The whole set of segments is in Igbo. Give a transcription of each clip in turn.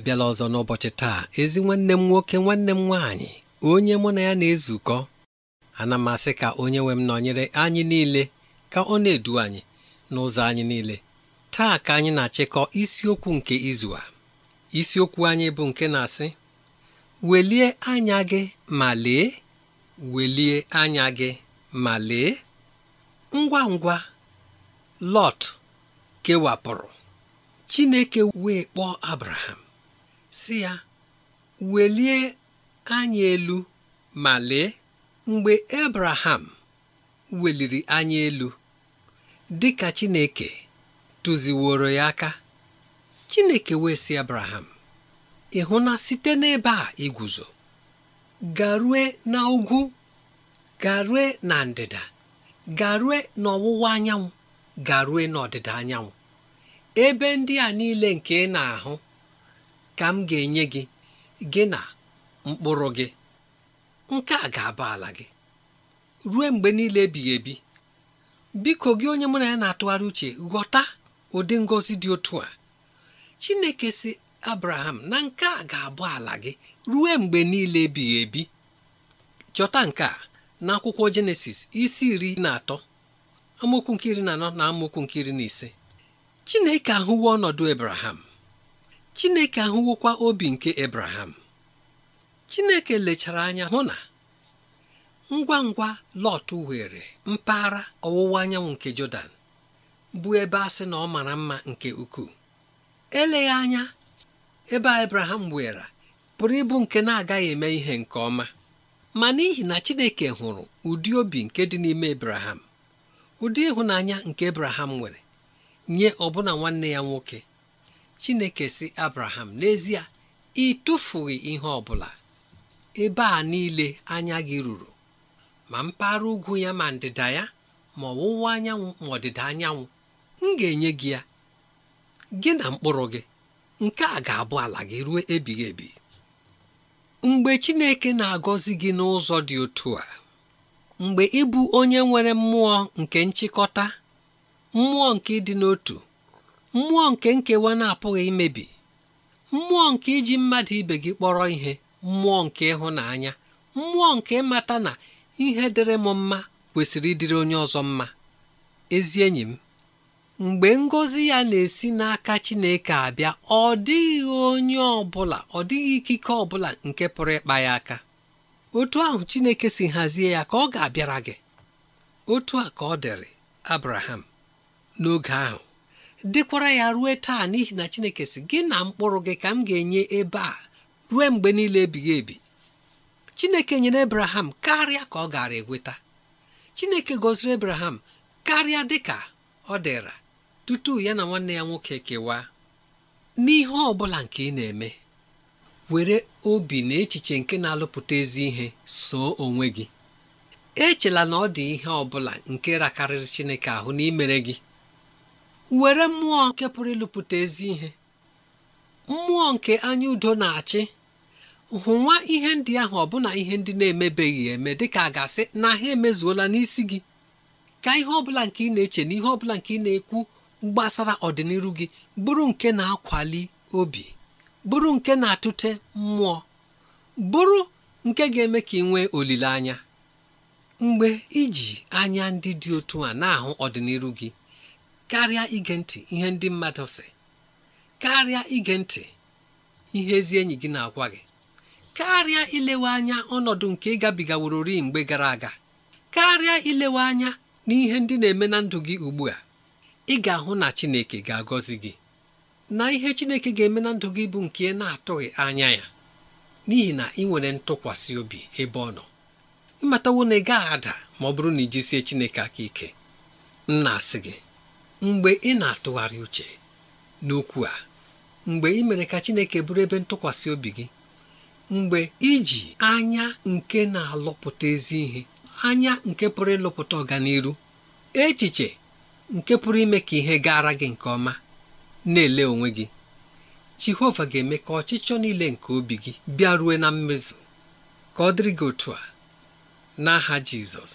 abịala ọzọ n'ụbọchị taa ezi nwanne m nwoke nwanne m nwaanyị onye mụ na ya na-ezukọ ana m asị ka onye nwe m nọnyere anyị niile ka ọ na-edu anyị n'ụzọ anyị niile taa ka anyị na-achịkọ isiokwu nke izu a isiokwu anyị bụ nke na-asị welie anya gị ma lee welie anya gị ma lee ngwa ngwa Lọt kewapụrụ Chineke wee kpọọ Abraham sị ya welie anya elu ma lee mgbe Abraham weliri anya elu dị ka Chineke tụziworo ya aka Chineke wee sị Abraham ị hụ na site n'ebe a iguzo garue na ugwu garue na ndịda garue n'ọwụwa anyanwụ garue n'ọdịda anyanwụ ebe ndị a niile nke ị na-ahụ ka m ga-enye gị gị na mkpụrụ gị nke a ga-aba ala gị ruo mgbe niile ebighị ebi biko gị onye mụ na ya na-atụgharị uche ghọta ụdị ngọzi dị otu a Chineke si Abraham na nke a ga-abụ ala gị ruo mgbe niile ebighị ebi chọta nke a n'akwụkwọ Jenesis isi iri na atọ amaokwu nke na anọ na amaokwu nke na ise Chineke ahụwo ọnọdụ Abraham Chineke ahụwokwa obi nke Ebraham Chineke lechara anya hụ na ngwa ngwa Lọt were mpaghara ọwụwa anyanwụ nke Jọdan bụ ebe a sị na ọ mara mma nke ukwuu eleghị anya ebe a Ebraham were pụrụ ịbụ nke na-agaghị eme ihe nke ọma ma n'ihi na Chineke hụrụ ụdị obi nke dị n'ime Ebraham ụdị ịhụnanya nke Ebraham nwere nye ọbụna nwanne ya nwoke chineke si abraham n'ezie ị tụfughị ihe ọ bụla ebe a niile anya gị ruru ma mpaghara ugwu ya ma ndịda ya ma ọwụwa anyanwụ ma ọdịda anyanwụ m ga-enye gị ya gị na mkpụrụ gị nke a ga-abụ ala gị ruo ebighị ebi mgbe chineke na-agọzi gị n'ụzọ dị otu a mgbe ịbụ onye nwere mmụọ nke nchịkọta mmụọ nke ịdị n'otu mmụọ nke nkewa na-apụghị imebi mmụọ nke iji mmadụ ibe gị kpọrọ ihe mmụọ nke ịhụnanya mmụọ nke ịmata na ihe dịrị m mma kwesịrị ịdịrị onye ọzọ mma ezi enyi m mgbe ngọzi ya na-esi n'aka Chineke abịa ọ dịghị onye ọbụla ọ dịghị ikike ọbụla nke pụrụ ịkpa ya aka otu ahụ Chineke si hazie ya ka ọ ga-abịara gị otu a ka ọ dịrị Abraham n'oge ahụ dịkwara ya rue taa n'ihi na chineke si gị na mkpụrụ gị ka m ga-enye ebe a rue mgbe niile ebighị ebi chineke nyere ebraham karịa ka ọ gara eweta chineke gọziri ebraham karịa dịka ọ dịra tutu ya na nwanne ya nwoke kewaa n'ihe ọ bụla nke ị na-eme were obi na echiche nke na-alụpụta ezi ihe soo onwe gị echela na ọ dị ihe ọ bụla nke rakarịrị chineke ahụ imere gị were mmụọ nke pụrụ ịlụpụta ezi ihe mmụọ nke anya udo na-achị hụnwa ihe ndị ahụ ọbụna ihe ndị na-emebeghị eme dịka a ga-asị na ha emezuola n'isi gị ka ihe ọbụla nke ị na-eche na ihe ọbụla nke ị na-ekwu gbasara ọdịnihu gị bụrụ nke na-akwali obi bụrụ nke na-atụte mmụọ bụrụ nke ga-eme ka ị nwee olileanya mgbe iji anya ndị dị otu a na-ahụ ọdịnihu gị karịa ige ntị ihe ndị mmadụ sị karịa ige ntị ihe ezi enyi gị na-agwa gị karịa ilewe anya ọnọdụ nke ịgabigaworori mgbe gara aga karịa ilewe anya na ihe ndị na-eme na ndụ gị ugbu a ị ga-ahụ na Chineke ga-agọzi gị na ihe Chineke ga-eme na ndụ gị bụ nke ị na-atụghị anya ya n'ihi na ị nwere ntụkwasị obi ebe ọ nọ ịmatawo na ị gaghị ada ma ọ bụrụ na ijisie Chineke aka ike m na-asị gị mgbe ị na-atụgharị uche n'okwu a mgbe ị mere ka Chineke bụrụ ebe ntụkwasị obi gị mgbe iji anya nke na-alụpụta ezi ihe anya nke pụrụ ịlụpụta ọganiru echiche nke pụrụ ime ka ihe gaara gị nke ọma na-ele onwe gị Jehova ga-eme ka ọchịchọ niile nke obi gị bịa rue na mmezu ka ọ dịrị gị otu a n'aha Jizọs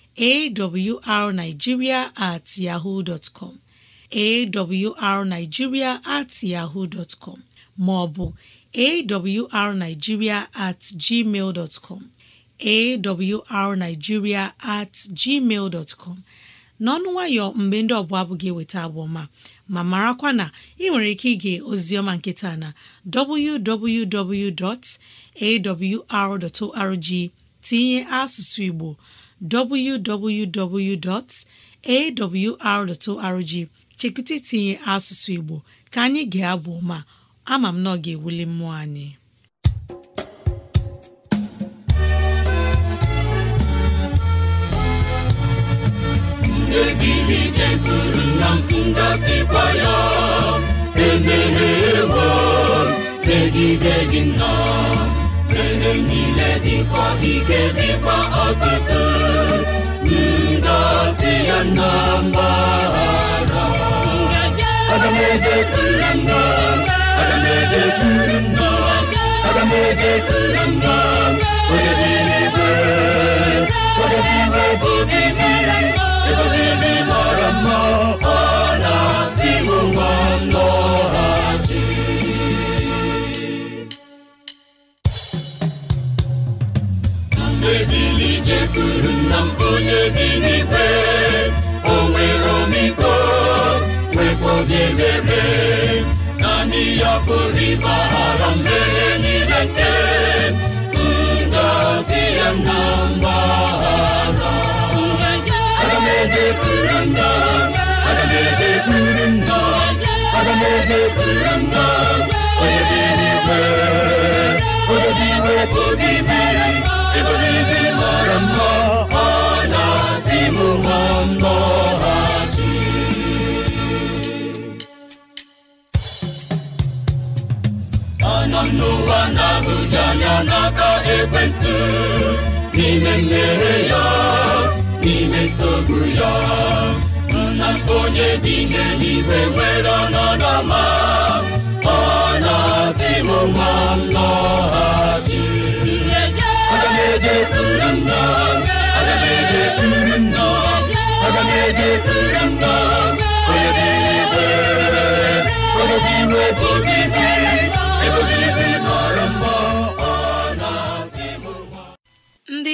awrnigeria at yahoo dot com awrnigeria at yahoo dot com maọbụ awrnigeria at gmail dot com awrnigeria at gmail dot n'ọnụ nwayọ mgbe ndị ọbụla abụ gị eweta abụọma ma marakwa na ị nwere ike ige ozioma nkịta na www.awr.org tinye asụsụ Igbo www.awr.org chekwụta tinye asụsụ Igbo ka anyị ga-abụ ma ama m na ọ ga-ewuli mmụọ anyị egilijeguru na ngọzikwa ya emehewo megide gị nna niile dịkwa ike dịkwa ọtụtụ kullanmamara Adam ede kullanma Adam ede kullanma ya kori ịgbaghara mmehie nile nke ngozi ya na mgbaghara aga m ejekwuru nna aga m ejekwuru nna aga m ejekwuru nna n'aka ekwensụ n'ime mmehie ya n'ime nsogbu ya nna onye bi n'eluigwe nwere ọnọdụ ọma ọ na-asị m ma m aga m ejekwuru nna aga m nna aga m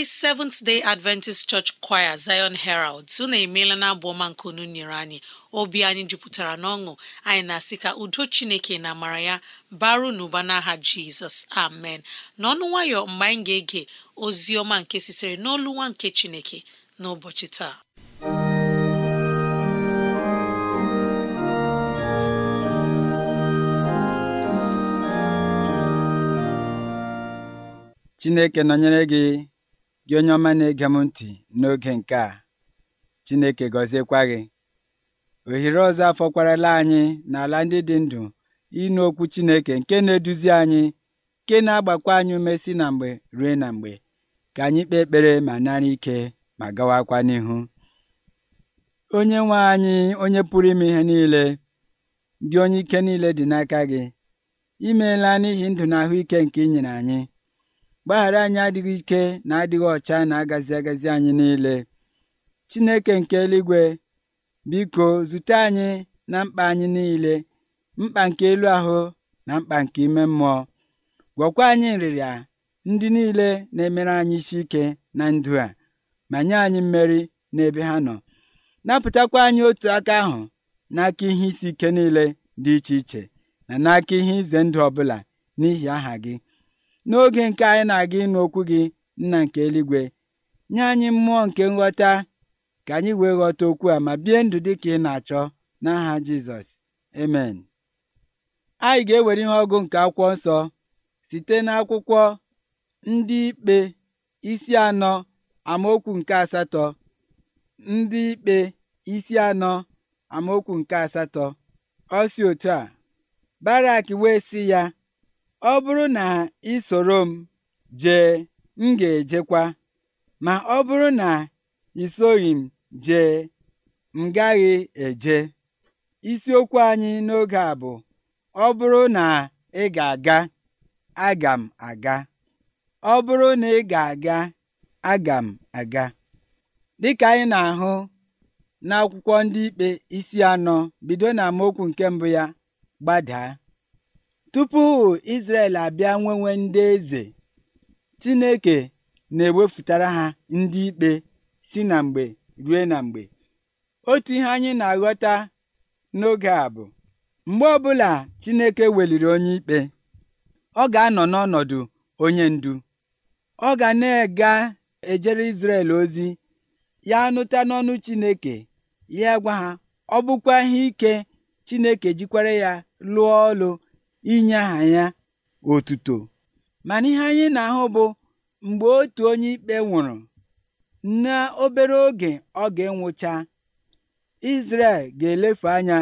Seventh Day Adventist Church Choir Zion Heralds unu emeela na abụ ọma nke unu nyere anyị obi anyị jupụtara n'ọṅụ anyị na-asị ka udo Chineke na amara ya baru n'ụba n'aha Jizọs amen n'ọnụ nwayọ mgbe anyị ga-ege ozi ọma nke sitere n'olu nwa nke Chineke n'ụbọchị taa Chineke nọnyere gị Gị onye ọma na-ege m ntị n'oge nke a Chineke gọziekwa gị ohere ọzọ afọkwarala anyị n'ala ndị dị ndụ ịnụ okwu Chineke nke na-eduzi anyị nke na-agbakwa anyị ume si na mgbe ruo na mgbe ka anyị kpee ekpere ma nara ike ma gawakwa n'ihu onye nwe anyị onye pụrụ ime ihe niile gị onye ike niile dị n'aka gị imeela n'ihi ndụ na ahụike nke ị nyere anyị Gbaghara anyị adịghị ike na adịghị ọcha na agazi agazi anyị niile. Chineke nke eluigwe biko zute anyị na mkpa anyị niile mkpa nke elu ahụ na mkpa nke ime mmụọ gwọkwa anyị nrịrịa ndị niile na-emere anyị isi ike na ndụ a ma nye anyị mmeri n'ebe ha nọ napụtakwa anyị otu aka ahụ n'aka ihe isi ike niile dị iche iche na n'aka ihe ize ndụ ọbụla n'ihi aha gị n'oge nke anyị na-aga ịnụ okwu gị nna nke eluigwe nye anyị mmụọ nke nghọta ka anyị wee ghọta okwu a ma bie ndụ dị ka ị na-achọ n'aha Jizọs amen anyị ga-ewere ihe ọgụ nke akwụkwọ nsọ site n'akwụkwọ ndị ikpe isi anọ amaokwu nke asatọ ndị ikpe isi anọ amaokwu nke asatọ ọ otu a Barak wee sị ya ọ bụrụ na ị soro m jee m ga-ejekwa ma ọ bụrụ na ị m jee m gaghị eje isiokwu anyị n'oge a bụ ọ bụrụ na ị ga-aga aga m aga ọ bụrụ na ị ga-aga aga m aga dịka anyị na-ahụ n'akwụkwọ ndị ikpe isi anọ bido na okwu nke mbụ ya gbadaa Tupu Izrel abịa nwenwe ndị eze, Chineke na-ewepụtara ha ndị ikpe si na mgbe rue na mgbe. Otu ihe anyị na-aghọta n'oge a bụ mgbe ọbụla Chineke weliri onye ikpe ọ ga-anọ n'ọnọdụ onye ndu ọ ga na-ega ejere Izrel ozi ya nụta n'ọnụ Chineke ya gwa ha ọ bụkwa ihe ike Chineke jikwara ya lụọ ọlụ inye aha ya otuto mana ihe anyị na-ahụ bụ mgbe otu onye ikpe nwụrụ n'obere oge ọ ga-enwụcha Izrel ga-elefu anya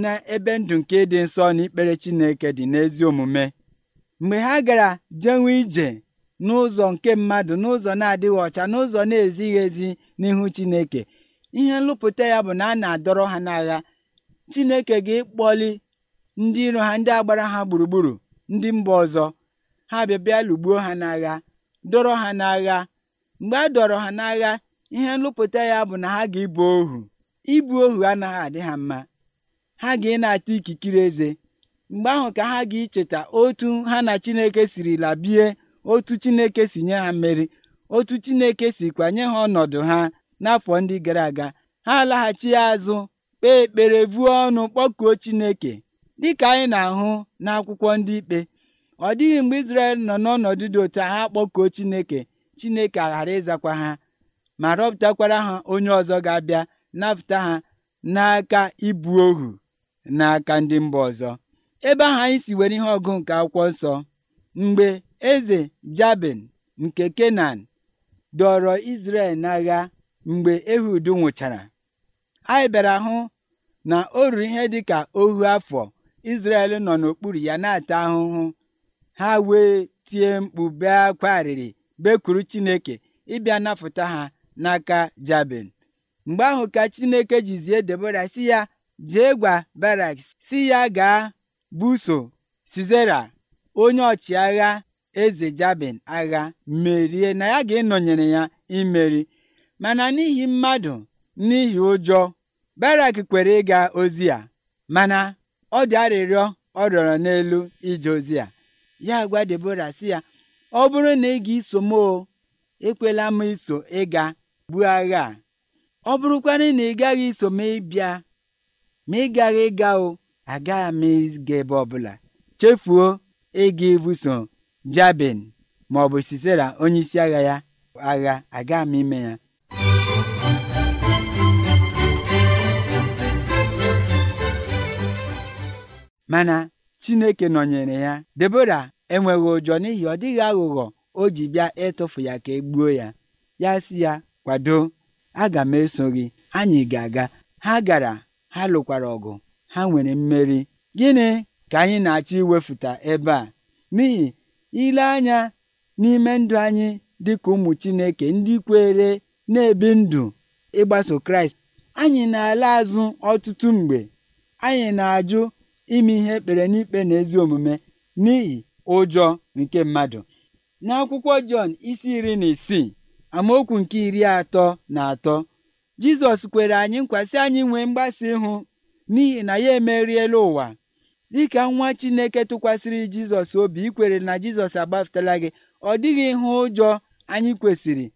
n'ebe ndụ nke dị nsọ na ikpere Chineke dị n'ezi omume mgbe ha gara jenwe ije n'ụzọ nke mmadụ n'ụzọ na-adịghị ọcha n'ụzọ na-ezighị ezi n'ihu Chineke ihe nlụpụta ya bụ na a na-adọrọ ha n'agha Chineke ga-ekpọli ndị iro ha ndị agbara ha gburugburu ndị mba ọzọ ha bịa bịa ha n'agha dọrọ ha n'agha mgbe a dọrọ ha n'agha ihe nlụpụta ya bụ na ha ga-ebu ohu ibu ohu anaghị adị ha mma ha ga na-ata ikikere eze mgbe ahụ ka ha ga-icheta otu ha na Chineke siri labie otu Chineke si nye ha mmeri otu Chineke si kwanye ha ọnọdụ ha n'afọ ndị gara aga ha laghachi azụ kpee ekpere vuo ọnụ kpọkuo Chineke Dịka anyị na-ahụ n'akwụkwọ ndị ikpe, ọ dịghị mgbe Izrel nọ n'ọnọdụ dị otu agha ha kpọkuo Chineke Chineke aghara ịzakwa ha ma rọpụtakwara ha onye ọzọ ga-abịa napụta ha n'aka ibu ohu n'aka ndị mba ọzọ ebe ahụ anyị si were ihe ọgụ nke akwụkwọ nsọ mgbe eze Jabin nke Kenan dọrọ Izrel n'agha mgbe Ehud nwụchara anyị bịara hụ na o ruru ihe dịka ohu afọ Izrel nọ n'okpuru ya na-ata ahụhụ ha wee tie mkpu bee akwa arịrị bekwuru Chineke ịbịa napụta ha n'aka Jabin mgbe ahụ ka Chineke jizie Debora si ya jee gwa Barak si ya gaa buso sizera onye ọchịagha eze Jabin agha merie na ya ga-enọnyere ya imeri mana n'ihi mmadụ n'ihi ụjọ Barak kwere ịga ozi ya mana ọ dị arịrịọ ọ rịọrọ n'elu ije ozi a ya gwa Debora sị ya ọ bụrụ na ị ga-eso m o ekwela m iso ịga buo agha a ọ bụrụkwanị na ị gaghị iso m ịbịa ma ị gaghị ịga o agaghị m ga ebe ọbụla chefuo ịga ibuso Jabin ma ọ bụ Sisera onye isi agha ya agha agaghị m ime ya mana Chineke nọnyere ya Debora enweghị ụjọ n'ihi ọ dịghị aghụghọ o ji bịa ịtụfu ya ka e gbuo ya ya si ya kwado aga m eso gị anyị ga-aga ha gara ha lụkwara ọgụ ha nwere mmeri gịnị ka anyị na-achọ iwefuta ebe a n'ihi ile anya n'ime ndụ anyị dịka ụmụ Chineke ndị kwere na-ebi ndụ ịgbaso Kraịst anyị na-ala azụ ọtụtụ mgbe anyị na-ajụ ime ihe ekpere n'ikpe na ezi omume n'ihi ụjọ nke mmadụ n'akwụkwọ Jọn isi iri na isii amaokwu nke iri atọ na atọ Jizọs kwere anyị nkwasị anyị nwee mgbasa ịhụ n'ihi na ya emeriela ụwa dịka nwa Chineke tụkwasịrị Jizọs obi ikwere na Jizọs agbapụtala gị ọ dịghị ihe ụjọ anyị kwesịrị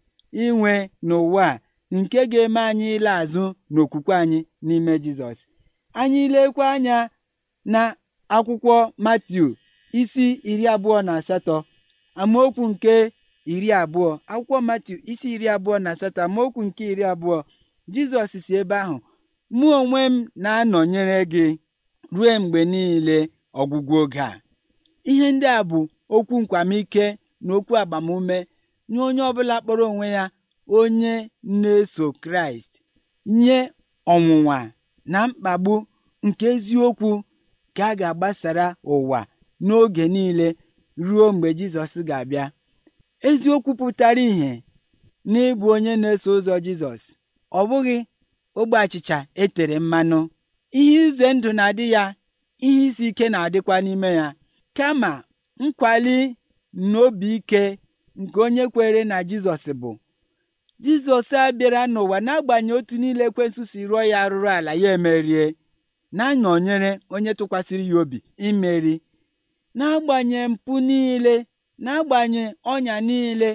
inwe n'ụwa a nke ga-eme anyị ile azụ n'okwukwe anyị n'ime Jizọs anyị lekwa anya na akwụkwọ Matiu isi iri abụọ na asatọ amaokwu nke iri abụọ akwụkwọ Matiu isi iri abụọ na asatọ amaokwu nke iri abụọ Jizọs si ebe ahụ mụ onwe m na-anọnyere gị ruo mgbe niile ọgwụgwụ oge a ihe ndị a bụ okwu nkwamike na okwu agbamume nye onye ọbụla kpọrọ onwe ya onye na-eso Kraịst nye ọnwụnwa na mkpagbu nke eziokwu ka a ga-agbasara ụwa n'oge niile ruo mgbe Jizọs ga-abịa eziokwu pụtara ìhè n'ịbụ onye na-eso ụzọ Jizọs ọ bụghị ogbe achịcha etere mmanụ ihe ize ndụ na-adị ya ihe isi ike na-adịkwa n'ime ya kama nkwali n'obi ike nke onye kwere na Jizọs bụ Jizọs abịara n'ụwa n'agbanyeghị otu niile Ekwensu rụọ ya arụrụ ala ya emerie na-anọnyere onye tụkwasịrị ya obi imeri na-agbanye mpụ niile agbanye ọnya niile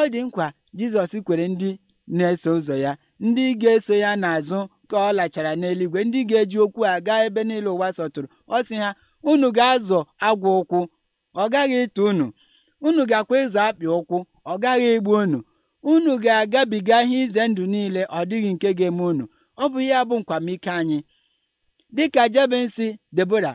ọ dị nkwa Jizọs kwere ndị na-eso ụzọ ya ndị ga-eso ya n'azụ ka ọ lachara n'eluigwe ndị ga-eji okwu a gaa ebe niile ụwa sọtụrụ ọ sị ha unu ga-azọ agwa ụkwụ ọ gaghị ịtụ unu unu ga-akwa ịzọ akpị ụkwụ ọ gaghị igbu unu unu ga-agabiga ihe ize ndụ niile ọ dịghị nke ga-eme unu ọ bụ ihe abụ bụ nkwamike anyị dịka Jebensi Debora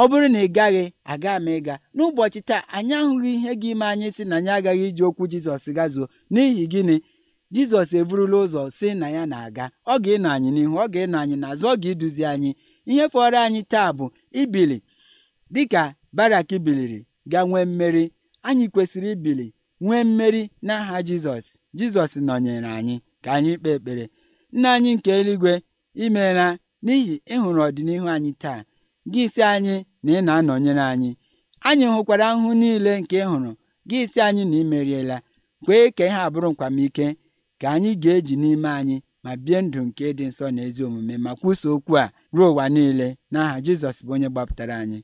ọ bụrụ na ị gaghị aga m ịga n'ụbọchị taa anyị ahụghị ihe gị ime anyị si na anyị agaghị iji okwu Jizọs gazuo n'ihi gịnị Jizọs eburula ụzọ si na ya na-aga ọ ga-ịnọ anyị n'ihu ọ ga-ịnọ anyị na-azụ ọ ga-eduzi anyị ihe fọrọ anyị taa bụ ibili dịka Barak biliri ga nwee mmeri anyị kwesịrị ibili nwee mmeri n'aha Jizọs Jizọs nọnyere anyị ka anyị kpee ekpere nna anyị nke eluigwe imeela n'ihi ịhụrụ e ọdịnihu anyị taa gị isi anyị na ị na-anọnyere anyị anyị hụkwara ahụhụ niile nke ị hụrụ gị isi anyị na imeriela kwee ka ihe abụrụ nkwamike ka anyị ga-eji n'ime anyị ma bie ndụ nke dị nsọ na ezi omume ma kwuso okwu a ruo ụwa niile n'aha Jizọs bụ onye gbapụtara anyị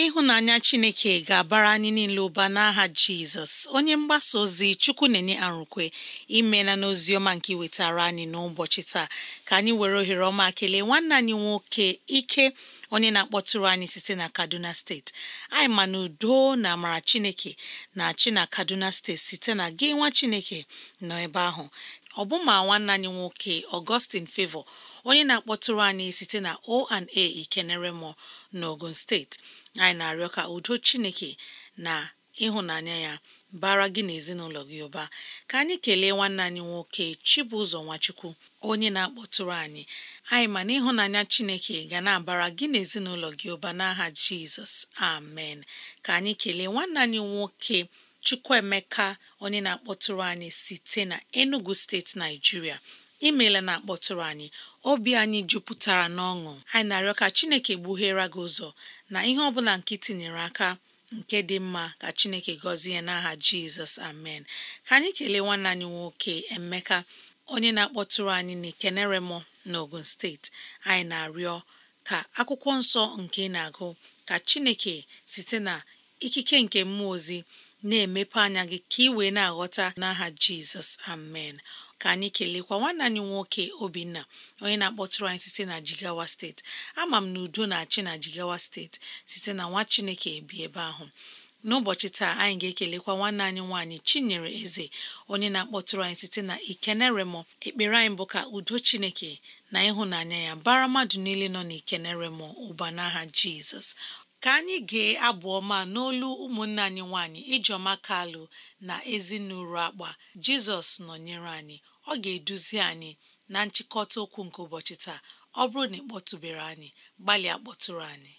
ịhụnanya chineke ga-abara anyị niile ụba n'aha jizọs onye mgbasa ozi chukwu na-enye arụkwe imela n'ozi ọma nke iwetara anyị n'ụbọchị taa ka anyị were ohere ọma kelee nwanne anyị nwoke ike onye na-akpọtụrụ anyị site na kaduna steeti anyị ma na udo na amara chineke na chi na kaduna steeti site na gị nwa chineke nọ ebe ahụ ọbụma nwanne anyị nwoke Augustine favọ onye na-akpọtụrụ anyị site na o O&A Ikeneremo n'Ogun steeti anyị na-arịọ ka udo chineke na ịhụnanya ya bara gị na gị ụba ka anyị kelee nwanne anyị nwoke Chibụzọ Nwachukwu onye na-akpọtụrụ anyị anyị ma na ịhụnanya Chineke ga na-abara gị na ezinụlọ gị ụba n'aha Jizọs amen ka anyị kelee nwanne anyị nwoke Chukwuemeka onye na-akpọtụrụ anyị site na Enugu steeti Naijiria imeela na akpọtụrụ anyị obi anyị jupụtara n'ọṅụ anyị na-arịọ ka chineke gbughere gị ụzọ na ihe ọ bụla nke tinyere aka nke dị mma ka chineke gọzie n'aha jizọs amen ka anyị kelee nwanne anyị nwoke emeka onye na-akpọtụrụ anyị n'Ikenere mọ n'Ogun steeti anyị na-arịọ ka akwụkwọ nsọ nke na-agụ ka chineke site na ikike nke mmụọ ozi na-emepe anya gị ka ị wee na-aghọta n'aha jizọs amen ka anyị kelekwa nwanne anyị nwoke obinna onye na-akpọtụrụ anyị site na jigawa steeti ama m na udo na-achị na jigawa steeti site na nwa chineke bi ebe ahụ n'ụbọchị taa anyị ga-ekelekwa nwanne anyị nwaanyị chinyere eze onye na-akpọtụrụ anyị site na ikeneremo ekpere anyị bụ ka udo chineke na ịhụnanya ya bara mmadụ niile nọ na ikenerem ụba n'aha jizọs ka anyị gee abụ ọma n'olu ụmụnne anyị nwaanyị ijeọma kalụ na ezinụlọ akpa jizọs nọnyere anyị ọ ga-eduzi anyị na nchịkọta okwu nke ụbọchị taa ọ bụrụ na ị anyị gbalịa akpọtụrụ anyị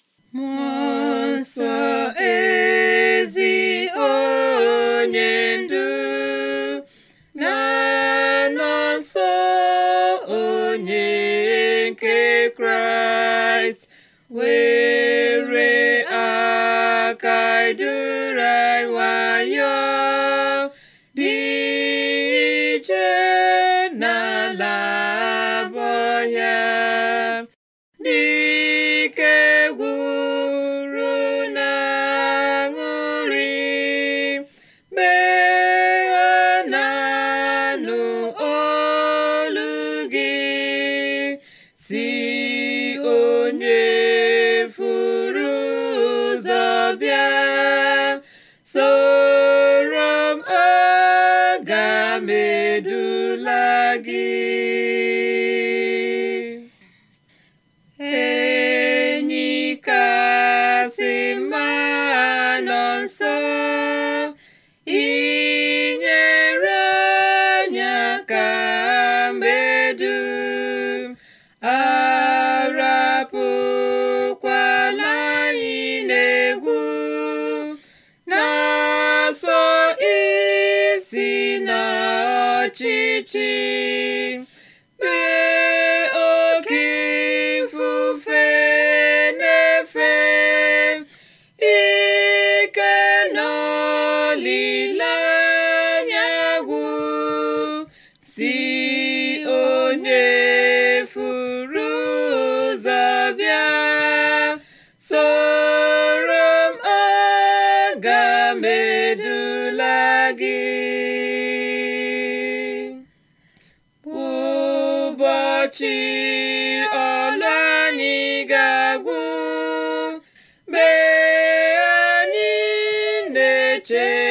Churches.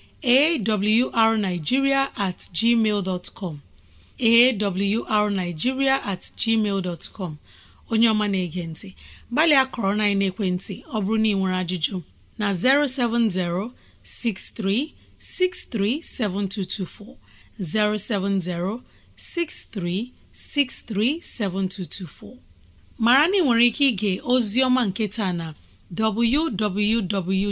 awrnigeria at com awrnigeria at com onye ọma na-ege ntị gbalịa kọrọ na ekwentị ọ bụrụ na ị nwere ajụjụ na 07063637224 07063637224 mara na ị nwere ike ige ozi ọma nke taa na www.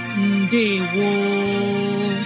woo!